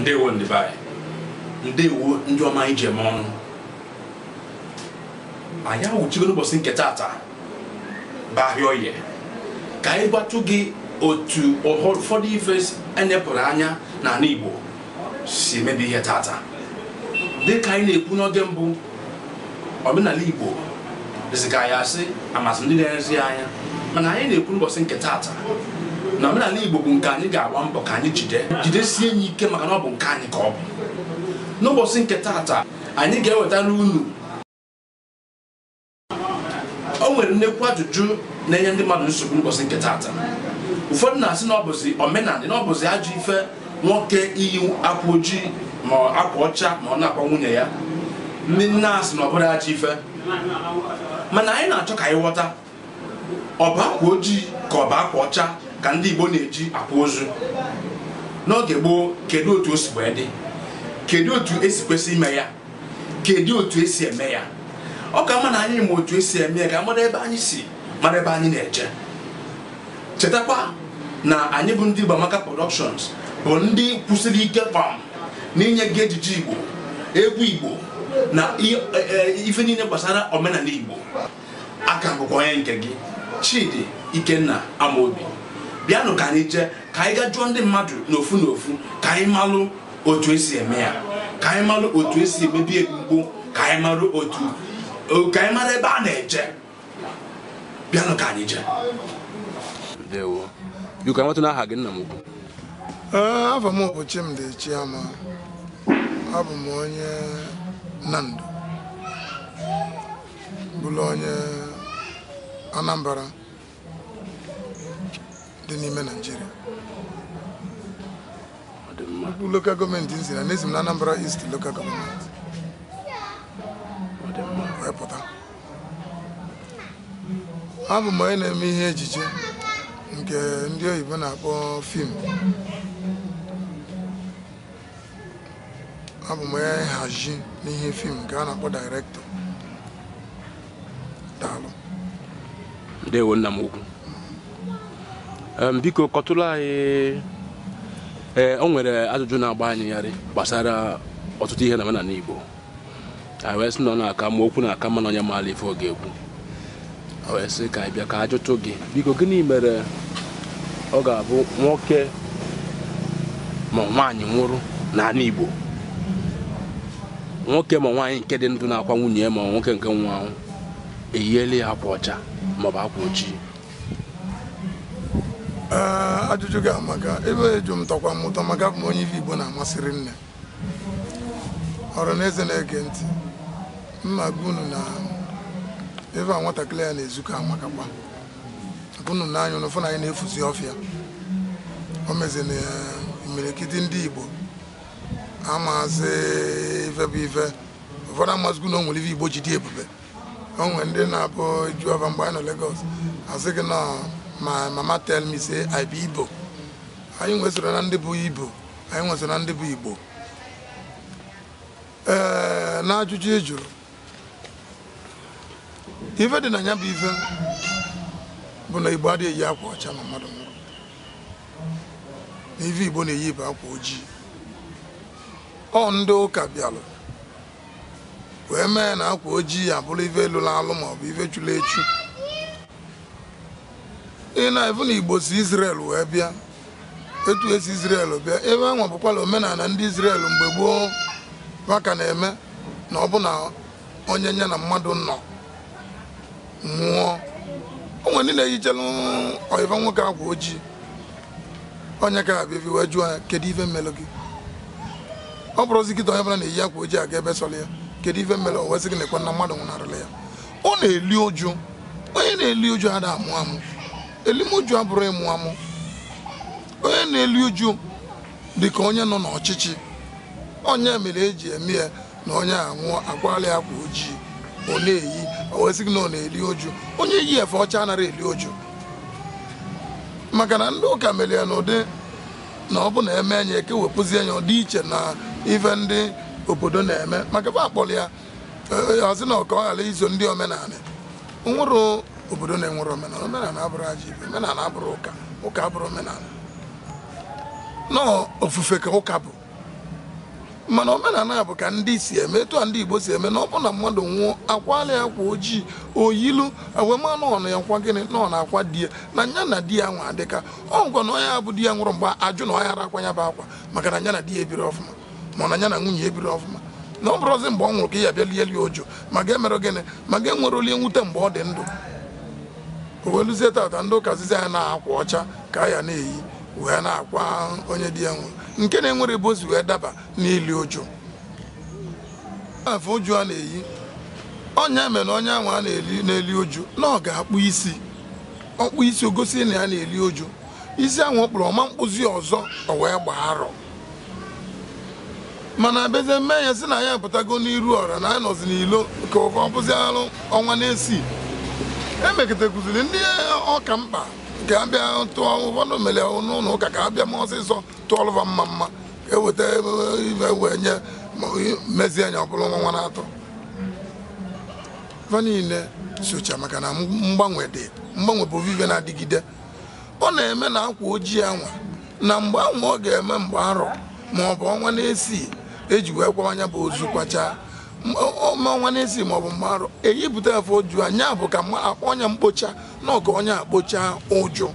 ndewo ndị ndewo ndị ọma anyị ji ọnụ anyị awụchigo n'ụbọchị nke taata bụ ahịa oye ka anyị gbatụ gị otu ụfọdụ ife enyepụrụ anya n'ala Igbo si emebi ihe taata dịka anyị na-ekwu n'oge mbụ omenala Igbo dịzika anyị asị amasị ndị na anya mana anyị na-ekwu n'ụbọchị nke taata na omenala igbo bụ nke anyị ga-agba mbọ ka anyị jide jidesie ya ike maka na ọ bụ nke anyị ka ọ bụ n'ụbọchị nke taata anyị ga-ewetara unu o nwere nnekwu ajụjụ na-enye ndị mmadụ nsogbu ụbọchị nke taata ụfọdụ na-asị na ọ bụzi omenala na ọ ajọ ife nwoke iyi akwa ojii ma akwa ọcha ma ọ na akpọ nwunye ya ndị nne asị na ọ bụrụ ajọ ife mana anyị na-achọ ka anyị ghọta ọ bụ akwa ojii ka ọ bụ akwa ọcha ka ndị Igbo na-eji akwa ozu n'oge gboo kedu otu o si wee dị kedu otu esi kwesị ime ya kedu otu esi eme ya ọ ka mma na anyị ma otu esi eme ya ka mara ebe anyị si mara ebe anyị na-eje chetakwa na anyị bụ ndị Igboamaka Productions bụ ndị kwụsịrị ike pam n'inye gị ejije Igbo egwu Igbo na e, e, ife niile gbasara omenala Igbo aka bụkwa onye nke gị Chidi Ikenna Amaobi. bịanụ ka anyị jee ka anyị gaa jụọ ndị mmadụ n'ofu n'ofu ka anyị malụ otu esi eme ya ka anyị malụ otu esi emebi egbugbo ka anyị malụ otu ka anyị mara ebe a na-eje bịanụ ka anyị jee biko anyị nwetụ n'aha gị nna m ukwu afọ m bụ Chimdi Chiama abụ m onye Nando bụrụ onye Anambara. dị n'ime Naịjirịa lokal gọọmenti nzi na n'ezi m na Anambra East lokal gọọmenti wee pụta abụ m onye na-eme ihe ejije nke ndị oyibo na-akpọ fim abụ m onye nhazi n'ihe fim nke a na-akpọ dairektọ daalụ ndewo nna m ukwu biko kọtụrụ anyị ee o nwere ajụjụ na-agba anyị yarị gbasara ọtụtụ ihe na omenala Igbo anyị wee sị na ọ na-aka ma okwu na-aka mana onye maala ife ọ ga-ekwu wee sị ka anyị bịa ka a jụtụ gị biko gịnị mere ọ ga-abụ nwoke ma nwaanyị nwụrụ n'ala Igbo nwoke ma nwaanyị nke dị ndụ na-akwa nwunye ma nwoke nke nwa ahụ eyiela ya akwa ọcha maọbụ akwa ojii Eh, ajụjụ gị amaka ebe eju m tọkwa maka abụ m onye ife Igbo na-amasịrị nne ọrụ na eze na-ege ntị mma gunu na ebe a nwatakịrị ya na-ezukọ amakakwa unu na ụnụ fụ na anyị na-efuzi ọfịa o mezina eh, imirikiti ndị Igbo amazi ife bụ ife ụfọdụ amazighi na o nwere ife Igbo ji dị ebube o nwere ndị na-abụ juọba mgbe anyị nọ Lagos asị gị na my mama tell me say I be Igbo anyị nwesoro na ndị bụ Igbo anyị nwesoro na ndị bụ Igbo ee eh, na ajụjụ e ife dị na ya bụ ife bụ na Igbo adịghị eyi akwa ọcha ma mmadụ nwụrụ na ife Igbo na-eyi bụ akwa ojii ọ ndị ụka bịalụ wee mee na akwa ojii abụrụ ife lụrụ alụ maọbụ ife chụrụ echu ị na-efu na igbo si Israel wee bịa etu esi Israel bịa ebe anwa bụkwala omenala ndị Israel mgbe gboo maka na-eme na ọ bụ na onye nye na mmadụ nọ nwụọ onwe ndị na-eyichelu ọyịva nwoke agwa ojii onye ka abịa ebi wee jụọ ya kedu ife mmelụ gị ọ bụrụzi gị onye bụla na-eyi akwa ojii aga ebe sọrọ ya kedu ife mmelụ owezi gị na ekwe na mmadụ nwụnarịla ya ọ na-eli ụjụ onye na-eli ụjụ ada amụ amụ elimuju abụrụ ịmụ amụ onye na-eli uju ka onye nọ n'ọchịchị onye mere eji eme ya na onye anwụọ akwali akwa ojii ọ na-eyi owezigị na ọ na-eli oju onye yi efe ọcha anaghị eli oju maka na ndị ụka mere ya n'ụdị na ọ bụ na eme anya ekewepụzie ya ọdị iche na ife ndị obodo na-eme maka ebe akpọrọ ya ozi e, e, na ọka ọ ghara izo ndị omenala nwụrụ obodo na-enwere omenala omenala abụrụ aja ibe omenala abụrụ ụka ụka abụrụ omenala nọọ ofufe ka ụka bụ mana omenala bụ ka ndị si eme etu a ndị igbo si eme na ọ bụ na mmadụ nwụọ akwala ya akwa ojii oyilu n'ọnụ ya nkwa gịnị nọ na akwa di ya na nya na di ya nwa adịka ọ ngwa na ọnya abụ di ya nwụrụ mgbe ajụ na ọnya ara akwa ya bụ akwa maka na nya na di ya ebiri ọfụma ma na nya na nwunye ebiri ọfụma na ọ bụrụzi mgbe ọ nwụrụ ka ị ya bịa lieli ma ga-emerụ gịnị ma ga-enwere olie nwute mgbe ọ dị ndụ weluzie tata ndị ụka zizi anyị na-akwa ọcha ka ya na-eyi wee na-akwa onye dị ya nwe nke na-enwere bụ wee daba n'ili ụjụ afọ ụjụ a na-eyi ọnya mere na onye ahụ a na-eli n'eli ụjụ na ọ ga-akpụ isi ọkpụ isi ogosi na ya na-eli ụjụ isi ahụ ọ kpụrụ ọma mkpụzi ọzọ ọ wee gbaa arọ mana bezie mme ya si na ya pụtago n'iru ọra na ya nọzi n'ilo ka ọ bụzi arụ ọnwa na-esi emekịtakụziri ndị ọka mkpa ka abịa tụọ ụfọdụ mere n'ụlọ ụka ka abịa m ọsịsọ tụọlụva mma mma eweta ibe wee nye mezie anya ọbụla nwa na-atọ fa niile socha maka na mgbanwe dị mgbanwe bụ vive na-adịgide ọ na-eme na akwa ojii anwa na mgbe anwa ọ ga-eme mgbe arọ ma ọ bụ ọnwa na-esi eji wee anya bụ ozu kwachaa ọnwa nwa nezi ma ọ bụ mmarụ eyipụta afọ oju anya bụ ka akpọ ọnya mkpocha na ọkụ ọnya akpocha ụjụ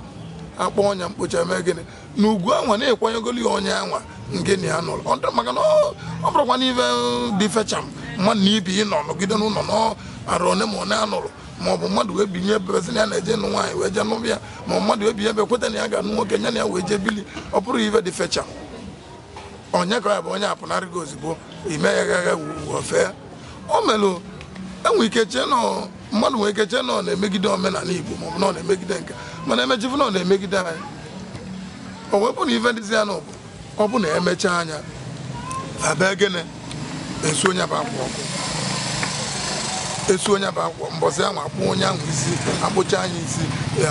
akpọ ọnya mkpocha mee gịnị na ugwu anwa na-ekwanyegolu ya ọnya anwa ngịnị ya nụrụ maka na ọ bụrụkwa na dị fecham mmadụ na ibi ịnọ nọgide n'ụlọ n'arụ one ma one anụrụ ma ọ bụ mmadụ wee binye ebebezi na ya na-eje nụ nwaanyị wee jee nụbịa ma mmadụ wee binye ebe kweta na ya ga-anụ nwoke nye na ya wee jee bili ọ bụrụ ife dị fecham onye ka ya bụ onye apụnarịgo ozugbo imeghaghị ofe o enwe e ike chee nọ mmadụ nwere ike chee nọ na-emegide omenala Igbo maọbụ nọ na-emegide nke mana emechifụ nọ na-emegide anyị o na ife ndịzi ya na ọ bụ na emechaa anya abịa gịnị esu onye bụ akwa ọkụ esu onye bụ akwa mbọsị ahụ akpụ onye ahụ isi akpụcha anya isi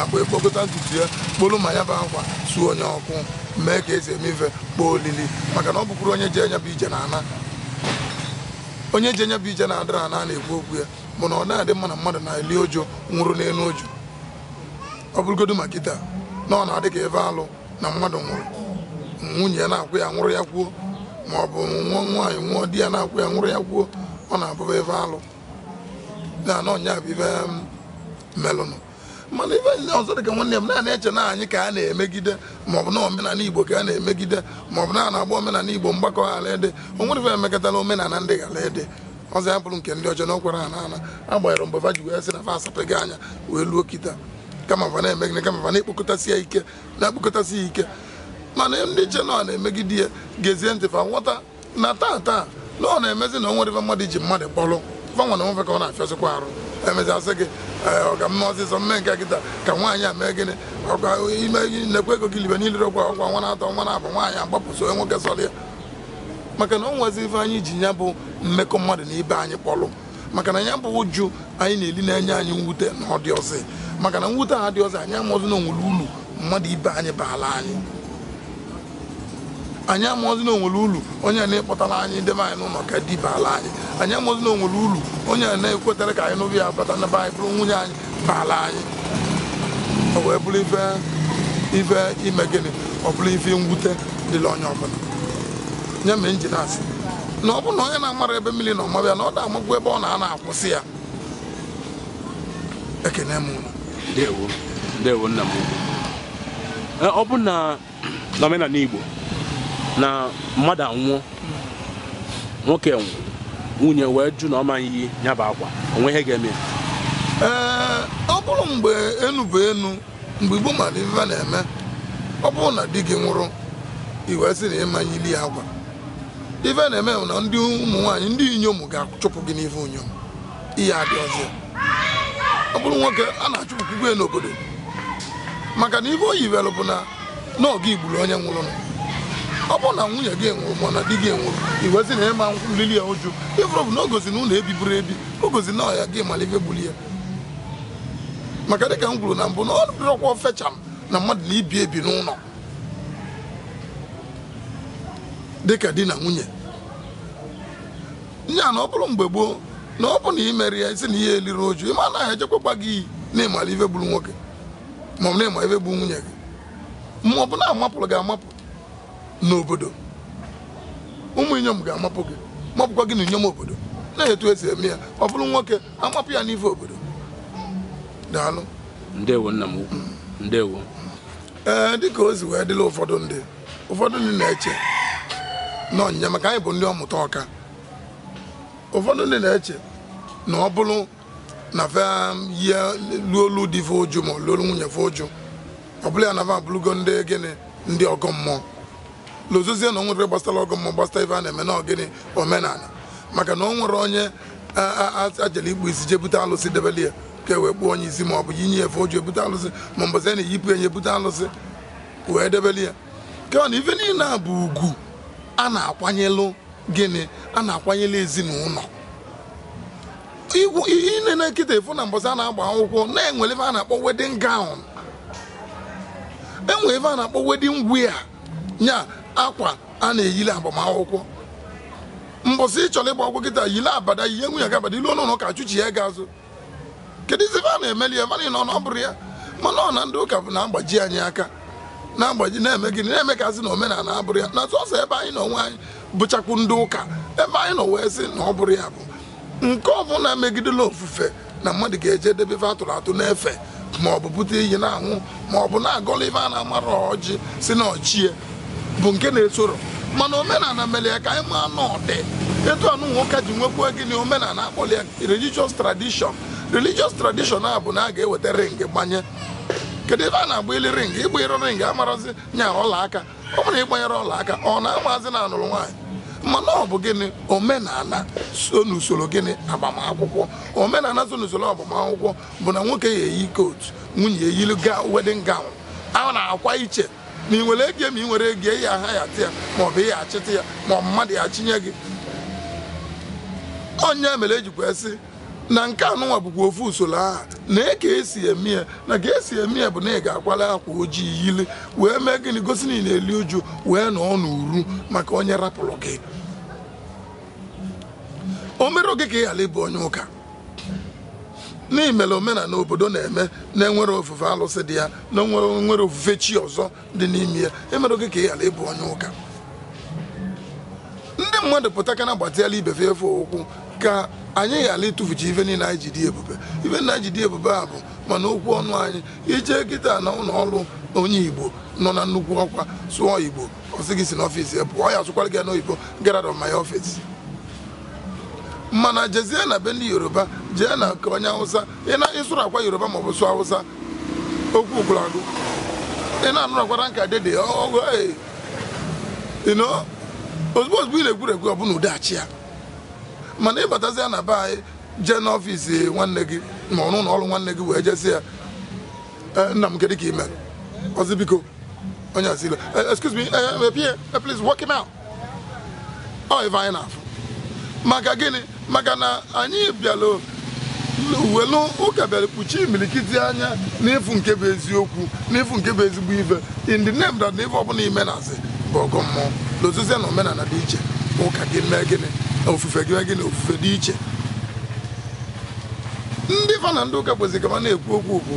akpụ ekpokọta ntutu ya kpolu ma ya bụ akwa suo onye ọkụ mee ka esi eme ife kpọọ olili maka na ọ bụkwuru onye ji anya bụ ije na ana onye ji enye bụ ije na-adịra na a na-ekwu okwu ya bụ na ọ na-adị mma na mmadụ na-eli oju nwụrụ n'elu oju ọ bụrụgodu ma kịta na ọ na-adị ka ebe alụ na mmadụ nwụrụ nwunye ya na-akwụ ya nwụrụ ya kwuo ma ọ bụ nwụọ nwaanyị nwụọ di ya na-akwụ ya nwụrụ ya kwuo ọ na-abụba ebe alụ na na bụ ibe melụnụ mana ife ndị ọzọ dị ka nwanne m naanị eche na anyị ka a na-emegide maọbụ na omenala igbo ka a na-emegide maọbụ na a na-agba omenala igbo mgbakọ ghara ede onwere ife emekọtala omenala ndị ghara ede ọzọ ya bụrụ nke ndị ọjọọ na okwere ana ana agbanyere mgbe fa ji wee sị na fa asapụghị anya wee luo kita kama fa na-emegide kama fa na-ekpokọtasị ya ike na-ekpokọtasị ya ike mana ndị che na ọ na-emegide ya gezie ntị fa nghọta na taa taa na ọ na-emezi na onwere ife mmadụ ji mmadụ kpọrọ fanwa na onwefe ka ọ na-afịasịkwa arụ emechaa sị gị eh, ọgamma ọsịsọ mme nke kịta ka nwaanyị a mee gịnị ọkwa ime nekwa ego gị libe niile ọkwa ọkwa nwa na-atọ nwa na-abụ nwaanyị agbapụso nwoke sọrọ ya maka na o nwezi ife anyị ji ya bụ mmekọ mmadụ na ibe anyị kpọlụ maka na ya bụ ụjụ anyị na-eli na-enye anyị mwute na ọ dị ọsị maka na mwute a dị ọsị anyị amụzi na onwere ulu mmadụ ibe anyị baala anyị anyị amụọzi na onwere ulu onye na-ekpọtara anyị debe anyị n'ụlọ ka diba ala anyị anyị amụọzi na onwere ulu onye na-ekwetara ka anyị n'obi ya bata n'ebe anyị bụrụ nwunye anyị ala anyị ọ wee bụrụ ife ife ime gịnị ọ bụrụ ife mwute dịla onye ọbụla nye m injin na ọ bụrụ na onye na-amara ebe mmiri na ọmabịa na ọ da-amagwu ebe ọ na ana akwụsị ya ekene ọ bụ na Igbo na mmadụ anwụọ nwoke nwunye wee jụ na ọ ma iyi ya bụ akwa onwe ihe ga-eme ee ọ bụrụ mgbe enu enu mgbe igbo mara ife na-eme ọ bụrụ na di gị nwụrụ iwee sị na ịma ili ya agwa ife na-eme na ndị ụmụ nwaanyị ndị inyom ga-achụpụ gị n'ife unyom ihe adị ọzọ ọ bụrụ nwoke a na achụpụ gị n'obodo maka na ife o yiwelụ bụ na n'oge igburu onye nwụrụ nọ ọ bụrụ na nwunye gị enwere na di gị enwere iwezi na ịma nlili ya ụjụ ịfụrụ bụ na gozi na ụlọ ebiburu ebi gozi na ọya gị malibe gbuli ya maka dịka m gwuru na mbụ na ọ dịrọkwa fecham na mmadụ na ibi ebi n'ụlọ dịka di na nwunye a na ọ bụrụ mgbe gboo na ọ bụ na imere ya isi na ihe eliri oju ịma anaghị ejekwakwa gị iyi na ịmala ibe gburu nwoke ma na ịma gburu nwunye gị ma ọ bụ na amapụrụ gị amapụ n'obodo ụmụ inyom ga-amapụ gị mapụkwa gị na inyom obodo na-etu esi eme ya ọ bụrụ nwoke amapụ ya n'ife obodo daalụ ee dịka ozi wee dịla ụfọdụ ndị ụfọdụ ndị na-eche na ọnyịnya maka anyị bụ ndị ọmụta ọka ụfọdụ ndị na-eche na ọ bụrụ na ya luolu di fe ụjụ ma luolu nwunye fe ụjụ ọ bụla ya na fa abụrụgo ndị gịnị ndị ọgọ mmụọ lụzozie na o nwere gbasara ọgụ ma gbasara ife a na-eme na omenala maka na o nwere onye ajele igbu isi jee bute alụsị debeli ya ka e wee kpuo onye isi ma ọ bụ inye efe o ji ebute alụsị ma mbọzi a na-eyipụ enye ebute alụsị wee debeli ya kea na ife niile a bụ ugwu a na-akwanyelụ gịnị a na-akwanyelụ ezinụlọ ine na nkịta efu na mbọzi a na-agba akwụkwọ na-enwere ife a na-akpọ wedin gown enwere ife a na-akpọ wedding e nya akwa a na-eyili agbamakwụkwọ mbọsị ị chọrọ ịgba ọgwụ kịta yile abada ihe nwunye gị abada ilu ka chụchi ya ga azụ kedu izi a na-emeli ya mana ọ ya mana ọ na ndị ụka bụ na-agbaji anyị aka na-agbaji na-eme gịnị na-eme ka asị na omenala abụrụ ya na sọsọ ebe anyị nọ onwe anyị bụchakwu ndị ụka ebe anyị nọ wee sị na ọ bụrụ ya bụ nke ọbụla megidela ofufe na mmadụ ga-eje debe atụrụ atụ n'efe ma ọ bụ bute iyi na anwụ ma na-agọla a na-amara ọjị si na ọchie bụ nke na-esoro mana omenala mere ya ka anyị maa n'ọdị etu anụ nwoke ji nwekwu gịnị omenala akpọrọ ya religious tradition religious tradition a bụ na a ga-eweta ring gbanye kedu ebe a na-agba ili ring ịgbanyere ring amarazi nya ọlaaka ọ bụrụ ịgbanyere ọlaaka ọ na-amazi na anụrụ nwaanyị mana ọ bụ gịnị omenala so n'usoro gịnị agbamakwụkwọ omenala so n'usoro agbamakwụkwọ bụ na nwoke ya eyi kot nwunye eyili ga wedin gawn a na-akwa iche ma ị nwere ege ma ị nwere ege ya aha ya ya ma ọ bụ ihe achịta ya ma mmadụ ya chinye gị onye mere ejikwa esi na nke anụnwa bụkwa ofu usoro aha na eke esi eme ya na ka esi eme ya bụ na ị ga-akwala akwa ojii yili wee mee gịnị gosi na ị na-eli uju wee na uru maka onye rapụrụ gị o mere gị ka ị ịbụ onye ụka n'ihi mere omenala obodo na-eme na-enwere ofufe alụsị dị ya na nwere ofufe chi ọzọ dị n'ime ya emere gị ka ị ghara ịbụ onye ụka ndị mmadụ pụtakana gbatịala ibefe efe ụkwụ ka anyị ghara ịtụfuchi ife niile anyị ebube ife na anyị ebube a bụ mana okwu ọnụ anyị ije kịta na ụlọọrụ ọrụ onye igbo nọ na nnukwu ọkwa sụọ igbo ọ si n'ọfịs ya pụọ ya asụkwara gị n'oyibo get out of my mana jezie na be ndị yoruba jee na nke onye hausa ịsụrụ akwa yoruba ma ọ bụ sụọ hausa okwu ogwulagụ ị na akwara nka dede ọgụ ịnọ ozugbo ozugbo ị na-egwuregwu ọ bụla udeachi ya mana ịbatazi ya na be anyị jee n'ọfịs nwanne gị ma ọrụ ụlọ ọrụ nwanne gị wee jezi ya nna eh, m kedu ka ime ọzi biko onye asile eh, excuse me eh, please work him out ọ oh, ife anyị na-afụ maka gịnị maka na anyị bịara welu ụka bịara kpuchie imilikiti anya n'efu nke bụ eziokwu n'efu nke bụ ezigbo ibe in the name that n'ife ọbụla ime na-asị bụ ọgụ mmụọ lozizie na omenala dị iche ụka gị mee gịnị ofufe gị mee gịnị ofufe dị iche ndị fa na ndị ụka kwesịrị kama na-ekwu okwu okwu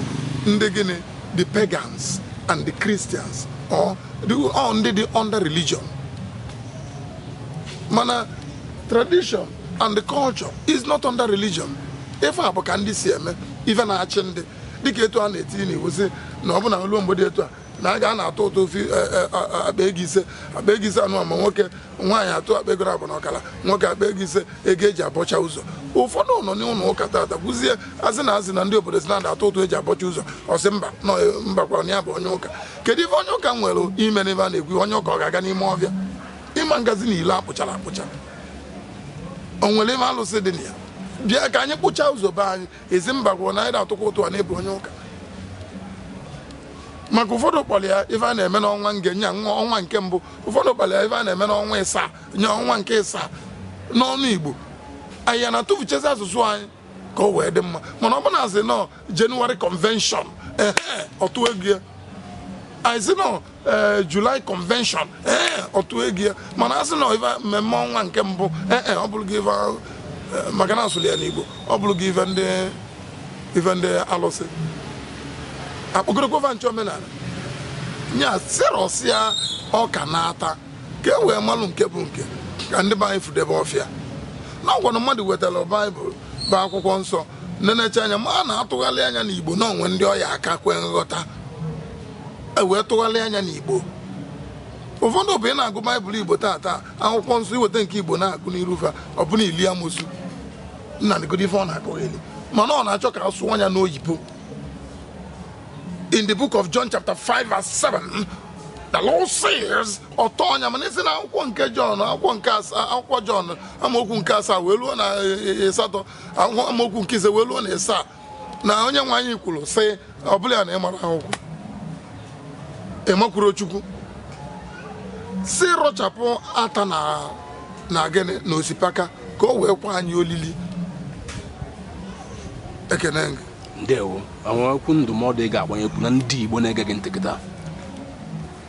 ndị gịnị the pagans and the christians or ndị dị under religion mana tradition and culture is not under religion ife a bụ ka ndị si eme ife na-achị ndị dịka etu a na-etinye n'iwu si na ọ bụ na olu mgbede etu a na a ga na-atụ ụtụ ofe e, akpa ego ise akpa ego ise anụ ma nwoke nwaanyị atụ akpa ego abụ na ọkara nwoke akpa ego ise ego eji abọcha ụzọ ụfọdụ nọ n'ụlọ ụka tata gwụzie azị na azị na ndị obodo si na-ada atụ ụtụ eji abọcha ụzọ ọsị mba e, mbakwara ya bụ onye ụka kedu ife onye ụka nwere ime n'ebe a na-ekwu onye ụka ọ ga-aga n'ime ọbịa ịma ngazi na ile akpụchara akpụcha onwere nwere ime alụsị dị na ya bịa ka anyị kpụchaa ụzọ be anyị ezi mba gwụrụ na anyị na-atụkwa ụtụ na-ebu onye ụka maka ụfọdụ kpọrọ ya ife a na-eme n'ọnwa nge nye ọnwa nke mbụ ụfọdụ kpọrọ ya ife a na-eme n'ọnwa ịsaa nye ọnwa nke ịsaa n'ọnụ igbo anyị ya na-atụfuchezi asụsụ anyị ka ọ wee dị mma mana ọ bụ na asị nọ jenụwarị kọnvenshọn ee ọtụ egwu ya anyị si nọ Eh, July convention eh, otu egi ya mana asị na ife mmemme ọnwa nke mbụ eh, ọ bụrụ gị maka na asụrụ ya n'Igbo ọ bụrụ gị ife ndị alụsị akpọgorokwa nche omenala nya sirọsịa ọka na-ata ka e wee malụ nke bụ nke ka ndị be anyị fudebe ọfịa na ọgwanụ mmadụ wetara baịbụl bụ akwụkwọ nsọ nenecha anya ma a na-atụgharị anya n'Igbo na onwe ndị ọya aka kwee nghọta E wee tụgharịa anya n'Igbo ụfọdụ bụ ị na-agụ baịbụl Igbo taata akwụkwọ nsọ iweta nke Igbo na-agụ n'irufe ọ bụla ili amosu nna dịgodo ife ọ na-akọgheli mana ọ na-achọ ka a sụọ anya n'oyibo in the book of John chapter 5 verse 7 the Lord says ọtọ mana na akwụkwọ nke John akwụkwọ nke akwụkwọ John amaokwu nke asaa wee luo na e, e, asatọ amaokwu nke ise wee luo na ịsaa na onye nwe anyị kwuru sị ọ bụla na ịmara akwụkwọ ịmakwuru Chukwu si rọchapụ ata na gịnị na osikapa ka o wee kwa anyị olili ekene gị ndewo okwu ndụmọdụ ị ga-agbanye okwu ndị Igbo na-ege gị ntị kịta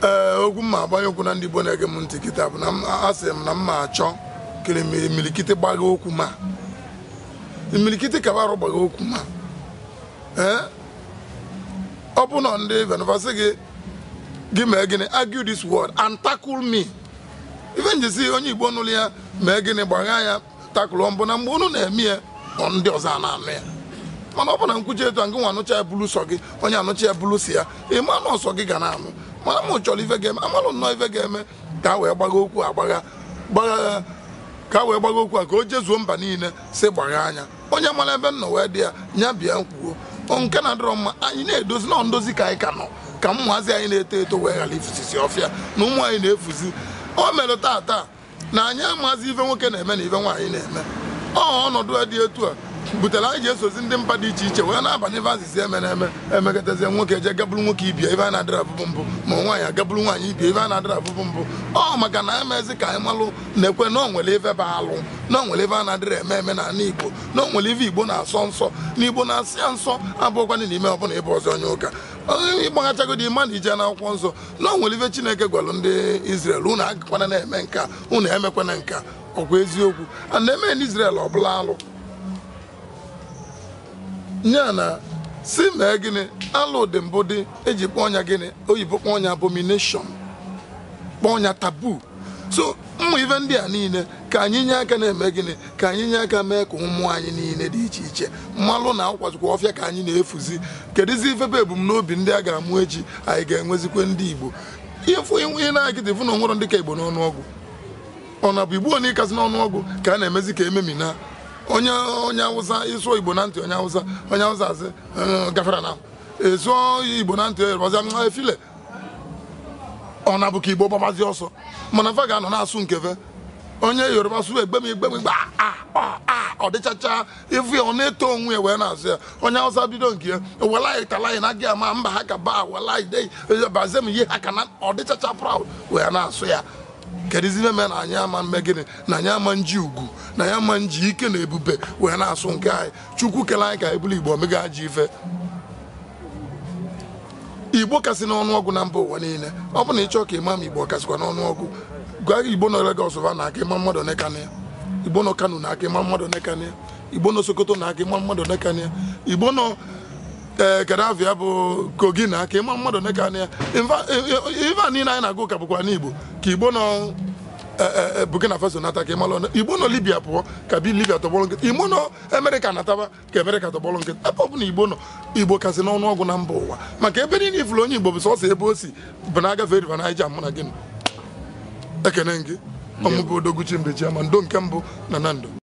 ee okwu m agbanye okwu na ndị Igbo na-ege m ntị kịta bụ na a sị m na m ma achọ kịrịmịrị milikiti gbaghị okwu ma imilikiti ka arụ gbaghị okwu ma ee ọ bụ na ndị venvasị gị gị mee gịnị argue this word and tackle me ife njisi onye igbo nụlụ ya mee gịnị gbagha ya takụlụ mbụ na mgbe unu na-eme ya ndị ọzọ na amị ya mana ọ bụ na nkwuchi etu a gị nwa anụcha ya bulu sọ gị onye anụcha ya bulu si ya ịma anụ ọsọ gị ga na-anụ mana m chọrọ ife ga-eme amalụ nnọọ ife ga-eme ka wee gbaga okwu agbagha gbagha ka a wee gbaga okwu a ka o jezuo mba niile si gbagha anya onye mara ebe nọ wee dị ya nya bịa nkwuo nke na-adịrọ mma anyị na-edozi nọ ndozi ka anyị ka nọ ka ụmụazị anyị na-eto eto wee ghara ifụzisi ọfịa na ụmụ anyị na-efuzi o mere taa taa na anyị amazi ife nwoke na-eme na ife nwaanyị na-eme ọ ọnọdụ dị etu a butere anyị ji esozi ndị mba dị iche iche wee na-abanye ebe azịza eme na eme emegotezie nwoke eje gaburu nwoke ibia ibe a na-adịra abụbụ mbụ ma nwaanyị agaburu nwaanyị ibia ibe a na-adịra abụbụ mbụ ọ maka na emezi ka anyị malụ na-ekwe na onwere ife bụ alụ na onwere ife a na-adịrị eme eme na ala igbo na onwere ife igbo na-asọ nsọ na igbo na-asị ya nsọ abụọkwana n'ime ọbụla ịbụ ọzọ onye ụka ịgbaghachagodi mmadụ ije n'akwụkwọ nsọ na onwere ife chineke gwalụ ndị Izrel unu agakwana na-eme nka unu emekwana nka ọkwa eziokwu a na-eme n'Izrel ọ bụla alụ nya na si mee gịnị alụ dị mbụ dị eji kpọọ ọnya gịnị oyibo kpọọ ọnya abomination kpọọ ọnya tabu so ụmụ ife ndị a niile ka anyị nye aka na-eme gịnị ka anyị nye aka mee ka ụmụ anyị niile dị iche iche mmalụ na akwazikwa ọfịa ka anyị na-efuzi kedụzi ifebe ebumnobi ndị a ga-amụ echi anyị ga-enwezikwe ndị igbo ihe na-agịdị fụ na onwere ndị ka igbo n'ọnụọgụ ọ na bụ igbo onye ịkazi n'ọnụọgwụ ka a na-emezi ka ememina onye onye awụsa ịsụọ igbo na ntị onye awụsa onye awụsa asị eh, gafere na ịsụọ igbo na ntị yoruba efile eh, ọ na bụ ka igbo gbabazi ọsọ mana fa ga-anọ na-asụ nke onye yoruba su egbe m igbe m igbe ọ dịchacha ife ọ na-eto onwe ya wee na-asụ ya onye awụsa bido nke ya tala talaị na gị ama mba ha ka ba welaị bazie m ihe ha ka na ọ dịchacha proud wee na-asụ ya kedụzi mee na anyị ama mmegịnị na anyị ama nji ugwu na anyị ama nji ike na ebube wee na-asụ nke anyị chukwu kele anyị ka ebulu igbo omega ji ife igbo kasị n'ọnụọgụ na mba ụwa niile ọ bụ na ịchọ ka ịma ma igbo kasịkwa n'ọnụọgụ gwa igbo nọ Lagos va na aka ịma mmadụ nekania igbo nọ Kano na aka ịma mmadụ nekania igbo nọ Sokoto na aka ịma mmadụ nekania igbo nọ ee eh, Gaddafi ya bụ kogina ka aka ịma mmadụ neka na ya ife a niile anyị na-agụ ụka bụkwa n'Igbo ka Igbo nọ eh, eh, Burkina Faso nata ka ịmalụ Igbo nọ Libya pụọ ka bi Libya tọgbọrọ nkịtị Igbo nọ Amerịka nataba ka Amerịka tọgbọrọ nkịtị ebe ọ Igbo nọ Igbo kasị n'ọnụ ọgụ na mba ụwa maka ebe niile ifuru onye Igbo bụ sọsọ ebe o si bụ na agafe riva Naija mụ na gị ekene gị ọmụbụ odoguchi mbechi ama ndo nke mbụ na na